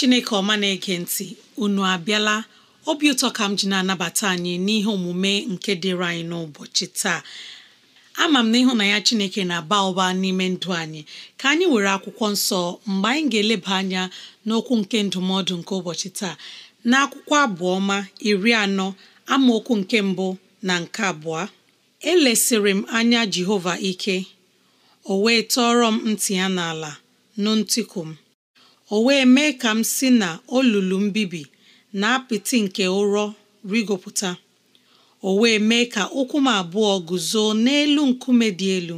chineke ọma na-ege ntị unu abịala obi ụtọ ka m ji na-anabata anyị n'ihe omume nke dịrị anyị n'ụbọchị taa ama m na na ya chineke na-aba ụba n'ime ndụ anyị ka anyị were akwụkwọ nsọ mgbe anyị ga-eleba anya n'okwu nke ndụmọdụ nke ụbọchị taa na akwụkwọ abụọma iri anọ amaokwu nke mbụ na nke abụọ elesịrị m anya jehova ike o wee tọọrọ m ntị ya n'ala nụ ntịkụ m o wee mee ka m si na olulu mbibi na apịtị nke ụrọ rigopụta o wee mee ka ụkwụ m abụọ guzo n'elu nkume dị elu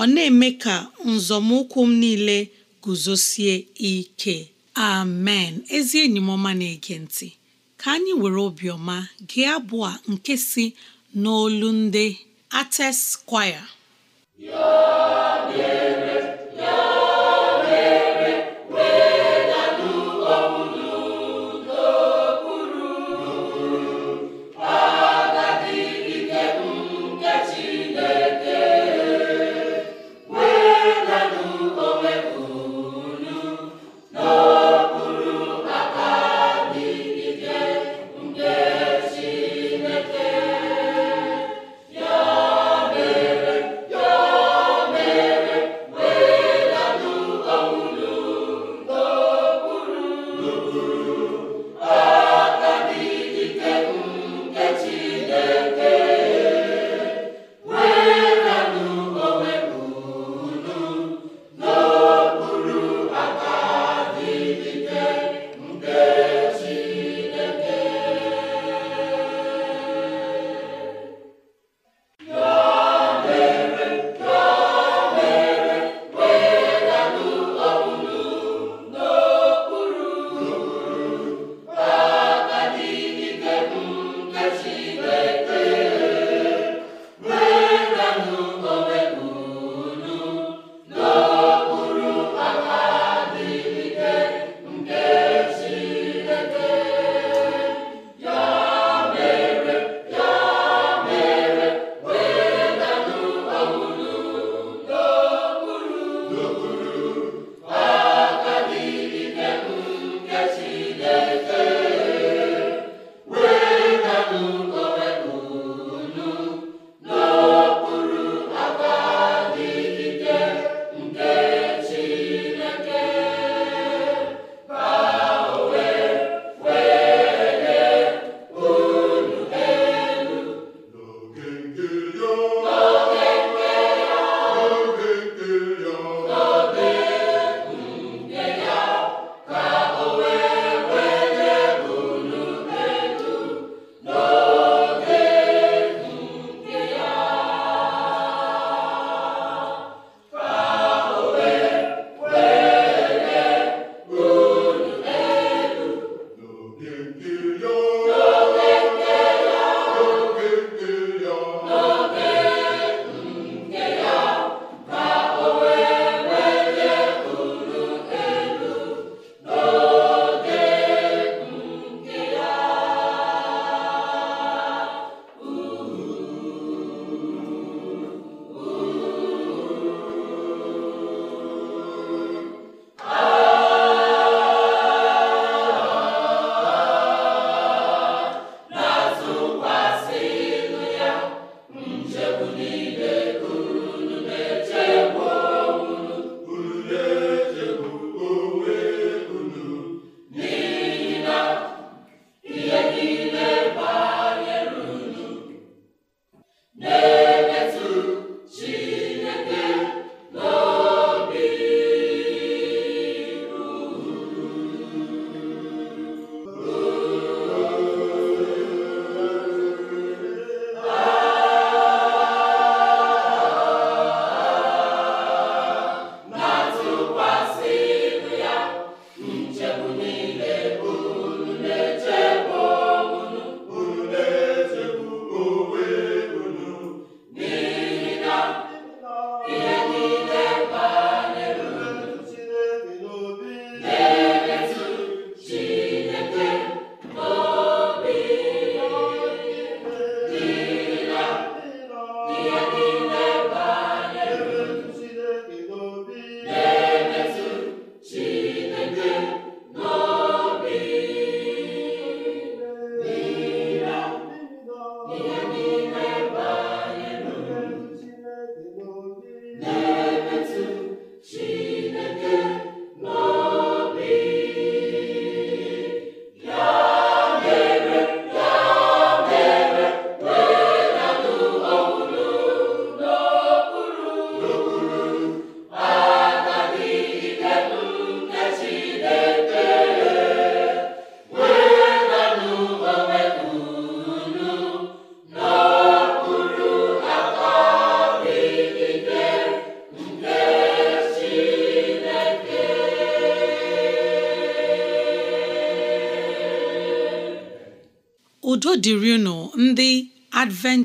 ọ na-eme ka nzọmụkwụ m niile guzosie ike amen ezi enyi m ọma na-ege ntị ka anyị were obiọma gị abụọ nke si n'olu ndị ates kwaya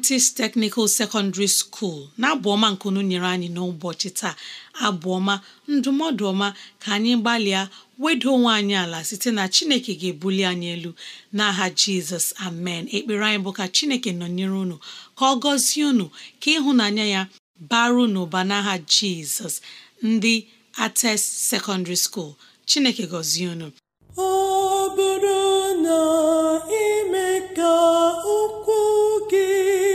adventist technical secondary school na-abụ ọma nkunu nyere anyị n'ụbọchị taa abụọma ndụmọdụ ọma ka anyị gbalịa wedo onwe anyị ala site na chineke ga-ebuli anyị elu n'aha jizọs amen ekpere anyị bụ ka chineke nọnyere unu ka ọ gọzie unu ka ịhụnanya ya baru n'ụba n'aha jizọs ndị ates secondary school chineke gọzie unu ọ bụrụ na ime ka gị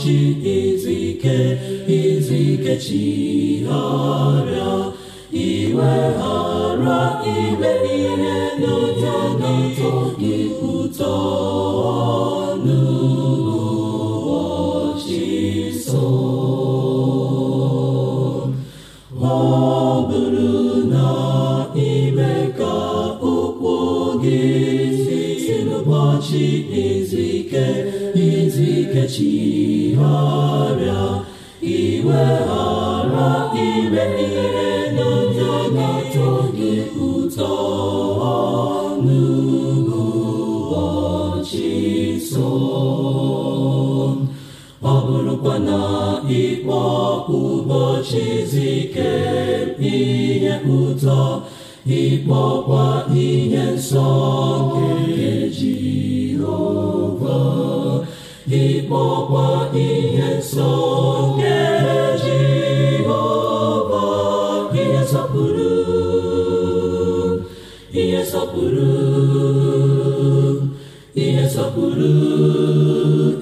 ụbọchị izu ike izu ike chigharịa iweghara ihe n'ụtọ n'ụtọ gị ụtọ n'ụbọchị so ọ bụrụ na ime ka ụkwụ gị si n'ụbọchị izu ike iwe ghara n'ụjọ na gị ụtọ n'ụbọchị nsọ ọ bụrụkwa na ihe ụbọchị izu ihe ụtọ ịkpọkwa ihe nsọ nke ihe na-esọpụrụ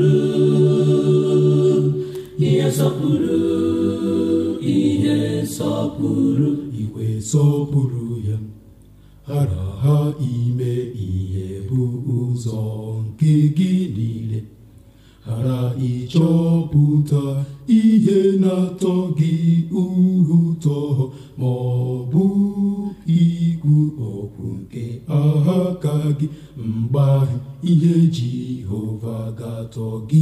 ihe sọọ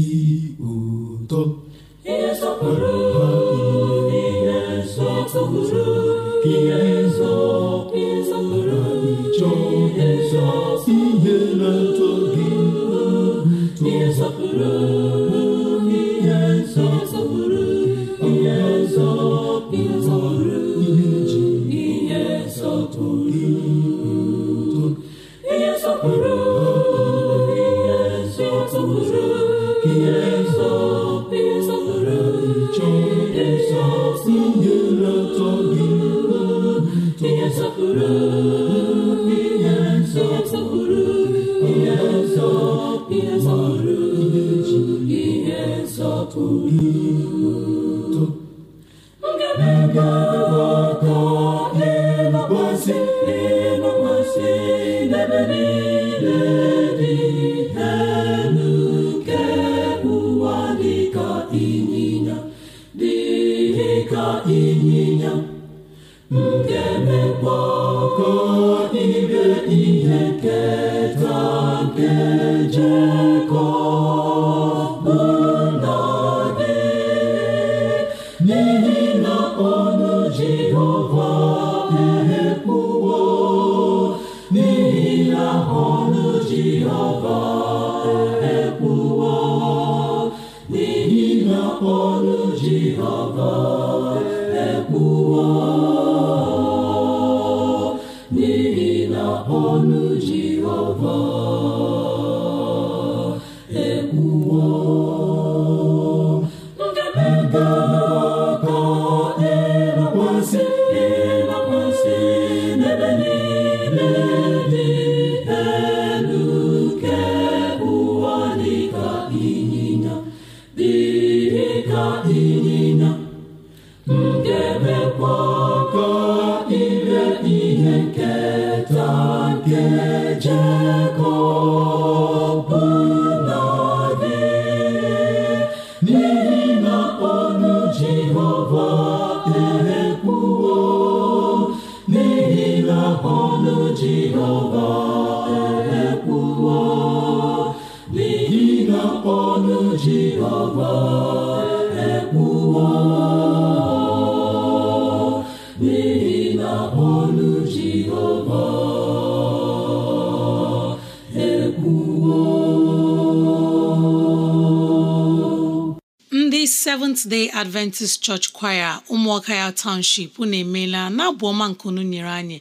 n'ihi na Go. Seventh Day Adventist Church Choir ụmụọka ya Township unu emeela na-abụ ọma nke unu nyere anyị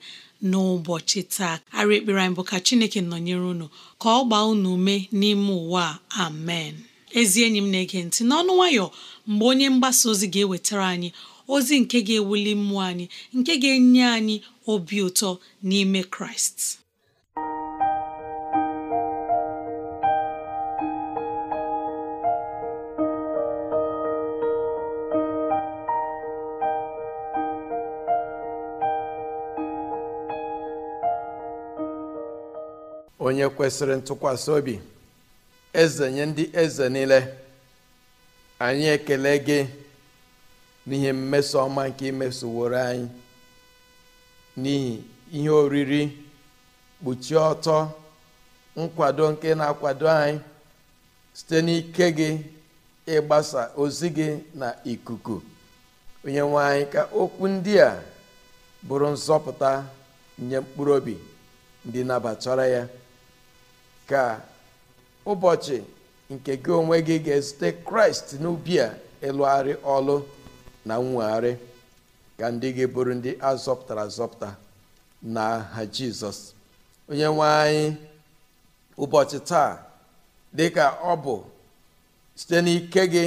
n'ụbọchị taa arị ekpere anyị bụ ka Chineke nọnyere unu ka ọ gbaa unu ume n'ime ụwa amen ezi enyi m na-ege ntị n'ọnụ nwayọ mgbe onye mgbasa ozi ga-ewetara anyị ozi nke ga-ewuli mmụọ anyị nke ga-enye anyị obi ụtọ n'ime Kraịst onye kwesịrị ntụkwasị obi eze nye ndị eze niile anyị ekele gị n'ihe mmeso ọma nke imesoworo anyị n'ihi ihe oriri kpuchie ọtọ nkwado nke na-akwado anyị site n'ike gị ịgbasa ozi gị na ikuku onye nwe anyị ka okwu ndị a bụrụ nzọpụta nye mkpụrụ obi ndị nabatara ya ka ụbọchị nke gị onwe gị ga-ezute kraịst n'ubi a ịlụgharị ọlụ na nwegharị ka ndị gị bụrụ ndị azọpụtara azọpụta na ha jizọs onye nwe anyị ụbọchị taa dịka ọ bụ site n'ike gị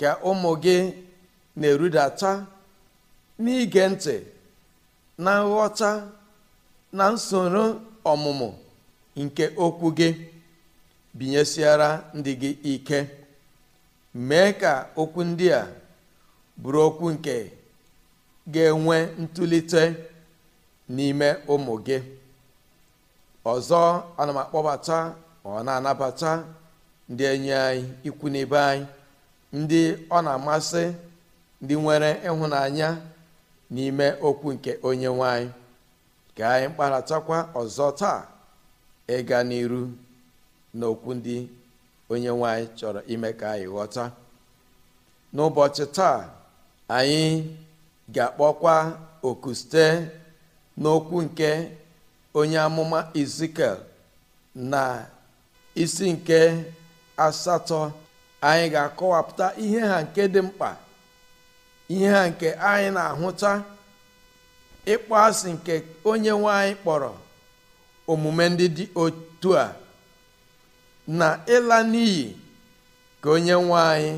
ka ụmụ gị na-erudata n'ige ntị na nghọta na nsoro ọmụmụ nke okwu gị binyesiara ndị gị ike mee ka okwu ndị a bụrụ okwu nke ga-enwe ntụlite n'ime ụmụ gị ọzọ ana m akpọbata ọ na-anabata ndị enyi anyị ikwu n'ibe anyị ndị ọ na-amasị ndị nwere ịhụnanya n'ime okwu nke onye nwanyị ka anyị kparatakwa ọzọ taa ịga n'iru n'okwu ndị onye nwanyị chọrọ ime ka anyị ghọta n'ụbọchị taa anyị ga-akpọkwa oku site n'okwu nke onye amụma Ezikiel na isi nke asatọ anyị ga-akọwapụta ihe ha nke dị mkpa ihe ha nke anyị na-ahụta ịkpọ asị nke onye nwanyị kpọrọ omume ndị dị otu a na ịla n'iyi ka onye nwe anyị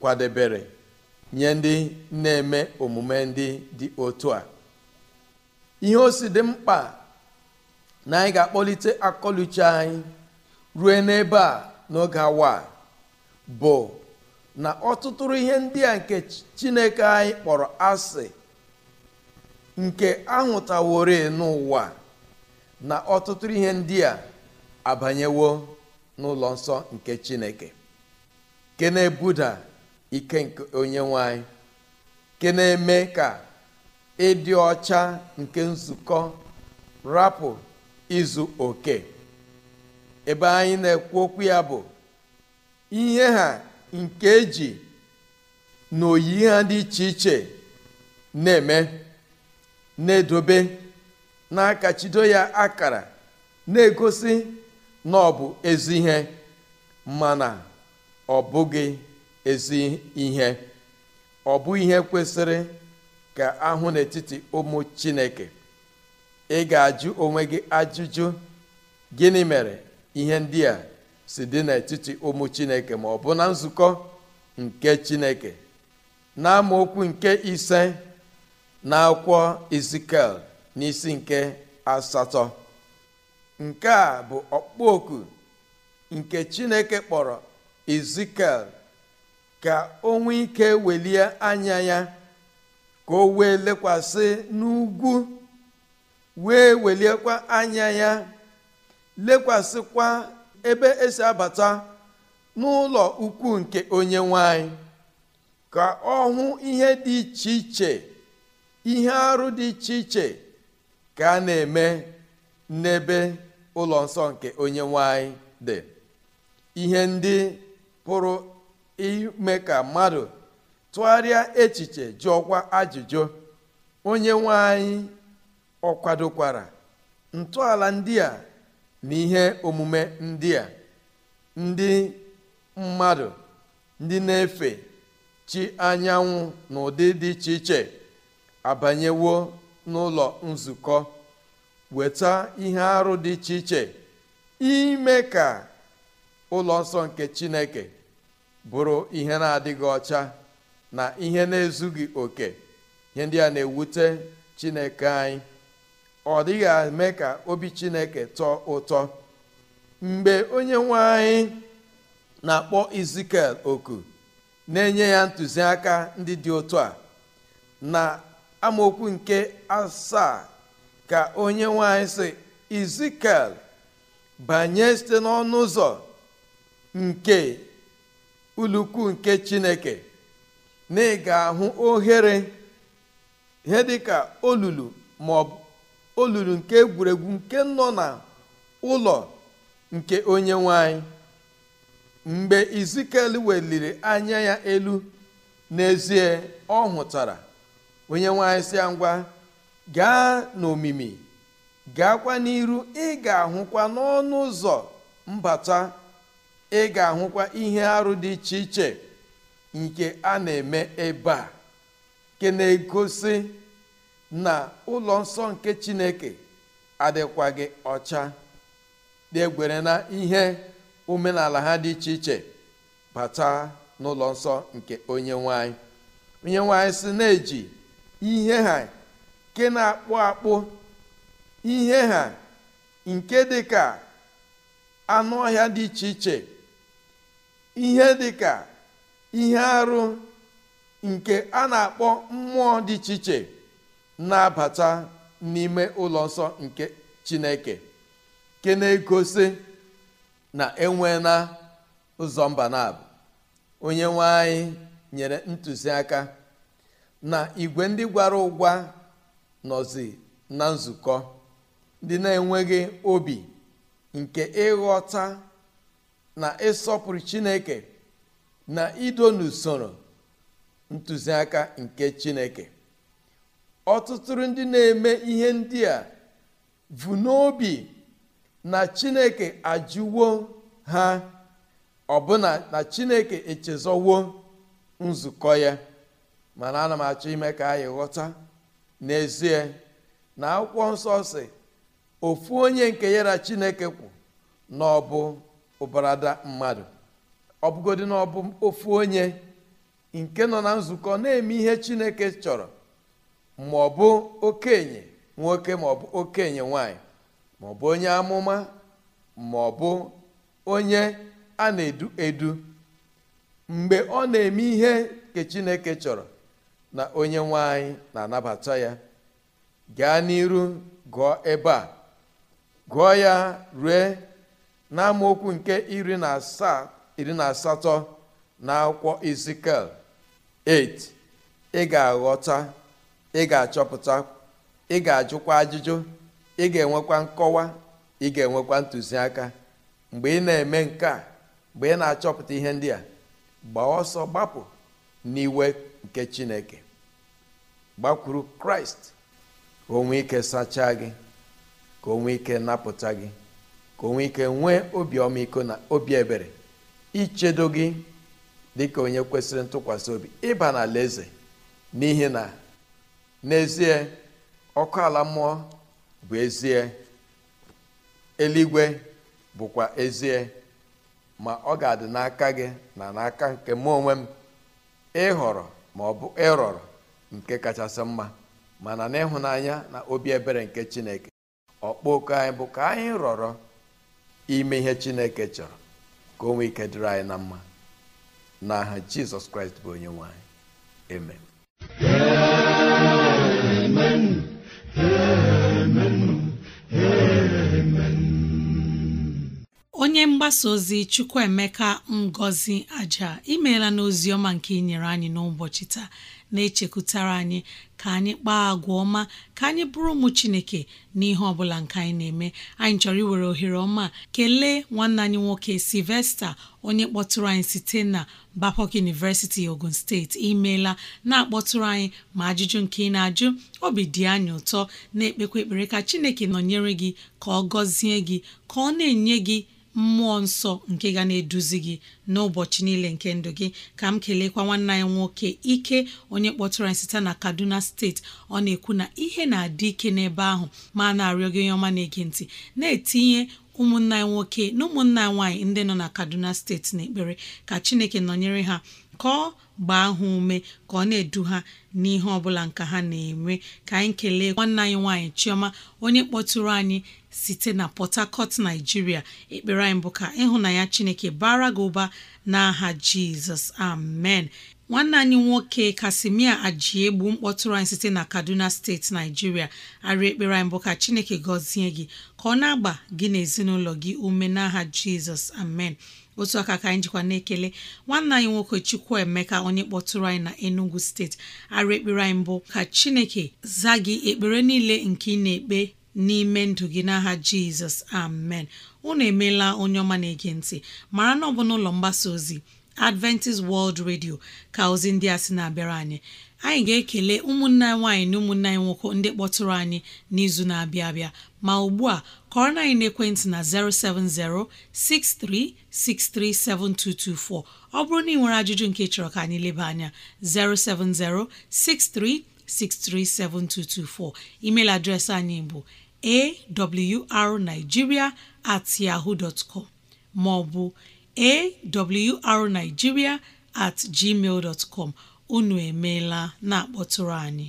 kwadebere nye ndị na-eme omume ndị dị otu a ihe o si dị mkpa na anyị ga-akpọlite akọluche anyị rue n'ebe a n'oge awa bụ na ọtụtụrụ ihe ndị a nke chineke anyị kpọrọ asị nke ahụtawori n'ụwa na ọtụtụ ihe ndị a abanyewo n'ụlọ nsọ nke chineke ke na-ebuda ike nke onye nwanyị ke na-eme ka ịdị ọcha nke nzukọ rapụ izu oke ebe anyị na-ekwu okwu ya bụ ihe ha nke eji na oyi ha dị iche iche na-eme na-edobe n'aka chido ya akara na-egosi na ọ bụ ezi ihe na ọ bụghị ezi ihe ọ bụ ihe kwesịrị ka ahụ n'etiti ụmụ chineke ị ga-ajụ onwe gị ajụjụ gịnị mere ihe ndị a si dị n'etiti ụmụ chineke ma ọ bụ na nzukọ nke chineke na amaokwu nke ise na akwụkwọ izikel n'isi nke asatọ nke a bụ okpoku nke chineke kpọrọ ezikiel ka o nwee ike welie anya ya ka o wee lekwasị n'ugwu wee weliekwa anya ya lekwasịkwa ebe esi abata n'ụlọ ukwu nke onye nwanyị ka ọ hụ ihe dị iche iche ihe arụ dị iche iche ka a na-eme n'ebe ụlọ nsọ nke onye nwanyị dị ihe ndị pụrụ ime ka mmadụ tụgharịa echiche jụọkwa ajụjụ onye nwanyị ọkwadokwara kwadokwara ntọala ndị a na ihe omume ndị a ndị mmadụ ndị na-efe chi anyanwụ n'ụdị dị iche iche abanyewo n'ụlọ nzukọ weta ihe arụ dị iche iche ime ka ụlọ nsọ nke chineke bụrụ ihe na-adịghị ọcha na ihe na-ezughị oke ihe ndị a na-ewute chineke anyị ọ dịghị eme ka obi chineke tọọ ụtọ mgbe onye nwe anyị na-akpọ izikel oku na-enye ya ntụziaka ndị dị otu a na amaokwu nke asaa ka onye nwanyị si izikel banye site n'ọnụ ụzọ nke ulukwu nke chineke na ị ga-ahụ ohere ihe dịka olulu maọbụ olulu nke egwuregwu nke nọ na ụlọ nke onye nwanyị mgbe izikel weliri anya ya elu n'ezie ọ hụtara onye nwanyị si ya ngwa gaa n'omimi gaakwa n'iru ị ga-ahụkwa n'ọnụ ụzọ mbata ị ga-ahụkwa ihe arụ dị iche iche nke a na-eme ebe a nke na-egosi na ụlọ nsọ nke chineke adịkwaghị ọcha degwere na ihe omenala ha dị iche iche bata n'ụlọ nsọ nke onye nwanyị onye nwanyị si na-eji ihe ha nke na-akpụ akpụ ihe ha nke dị ka anụ ọhịa dị iche iche ihe dị ka ihe arụ nke a na-akpọ mmụọ dị iche iche na-abata n'ime ụlọ nsọ nke chineke nke na-egosi na enwe na ụzọ mba na onye nwe anyị nyere ntụziaka na igwe ndị gwara ụgwa nọzi na nzukọ ndị na-enweghị obi nke ịghọta na ịsọpụrụ chineke na ido n'usoro ntụziaka nke chineke ọtụtụ ndị na-eme ihe ndị a bụ n'obi na chineke ajụwo ha ọbụna na chineke echezọwo nzukọ ya mana ana m achọ ime ka anyị ghọta n'ezie na akwụkwọ nsọ si ofu onye nke ya chineke kwụ na ọ bụ ụbarada mmadụ ọ bụgodị na ọ ofu onye nke nọ na nzukọ na-eme ihe chineke chọrọ ma ọ bụ okenye nwoke ma ọ bụ okenye nwanyị ma ọ bụ onye amụma ma ọ bụ onye a na-edu edu mgbe ọ na-eme ihe nke chineke chọrọ na onye nwe na-anabata ya gaa n'iru gụọ ebe a gụọ ya rue n'amaokwu nke iri na asaa na asatọ na akwụkwọ Ezikiel 8 ị ga-aghọta ị ga-achọpụta ị ga-ajụkwa ajụjụ ị ga-enwekwa nkọwa ị ga-enwekwa ntụziaka mgbe ị na-eme nke a mgbe ị na-achọpụta ihe ndị a gbaa ọsọ gbapụ n'iwe nke Chineke gbakwuru kraịst ka onwe ike sachaa gị ka onwe ike napụta gị ka onwe ike nwee obi ọmịiko na obi ebere ichedo gị dịka onye kwesịrị ntụkwasị obi ịba na eze n'ihi na n'ezie ọkụ ala mmụọ bụ ezie eluigwe bụkwa ezie ma ọ ga-adị n'aka gị na n'aka nke mụ onwe m ịhọrọ ma ọ bụ ịrọrọ nke kachasị mma mana n'ịhụnanya na obi ebere nke chineke ọkpọku anyị bụ ka anyị rọrọ ime ihe chineke chọrọ ka onwe ike dịrị anyị na mma n'aha jizọs kraịst bụ onye nwanyị eme onye mgbasa ozi Chukwuemeka Ngozi Aja imeela n'ozi ọma nke inyere anyị n'ụbọchị taa na-echekwutara anyị ka anyị kpaa agwa ọma ka anyị bụrụ ụmụ Chineke n'ihe ọ bụla nke anyị na-eme anyị chọrọ iwere ohere ọma kelee nwanne anyị nwoke Sylvester onye kpọtụrụ anyị site na bapok University Ogun Steeti imeela na-akpọtụrụ anyị ma ajụjụ nke ị na-ajụ obi dị anyị ụtọ na-ekpekwa ekpere ka Chineke nọnyere gị ka ọ gọzie gị ka ọ na-enye gị mmụọ nsọ nke ga na-eduzi gị n'ụbọchị niile nke ndụ gị ka m kelekwa nwanne anyị nwoke ike onye kpọtụrụ anyị site na Kaduna steeti ọ na-ekwu na ihe na-adị ike n'ebe ahụ ma na-arịọ gị onye ọma na-ege ntị na-etinye ụmụnna nwoke na ụmụnna nwaanyị ndị nọ na Kaduna steeti n'ekpere ka Chineke nọnyere ha ka ọ gbaa ha ume ka ọ na-edu ha n'ihe ọbụla nke ha na-eme ka anyị kelee nwanne anyị nwaanyị Chioma onye kpọtụrụ anyị site na Port Harcourt Nigeria ekpere anyị bụ ka ịhụnanya Chineke bara gị ụba n'aha Jizọs amen nwanne anyị nwoke Kasimia Ajiegbu mkpọtụrụ anyị site na Kaduna steeti Naijiria arịa ekpere anyị bụ ka Chineke gọzie gị ka ọ na-agba gị na gị ume n'aha Jizọs amen otu aka ka anyị jikwa na-ekele nwanne anyị nwoke Chukwuemeka onye kpọtụrụ anyị na Enugu steeti arụ ekpere anyị mbụ ka Chineke zaa gị ekpere niile nke ị na-ekpe n'ime ndụ gị n'aha Jizọs amen unu emeela onye ọma na-ege ntị mara na ọ bụna ụlọ mgbasa ozi Adventist World Radio ka ozi ndị a sị na-abịara anyị anyị ga-ekele ụmụnne nwaanyị na ụmụnne anyị nwoke ndị kpọtụrụ anyị n'izu na-abịa abịa ma ugbu a kọrọ na anyị na 070 6363 7224 ọ bụrụ na ị nwere ajụjụ nke chọrọ ka anyị leba anya 070 6363 7224 email adreesị anyị bụ awrnigeria at yahoo com maọbụ awrnigeria at gmail com unu emeela na-akpọtụrụ anyị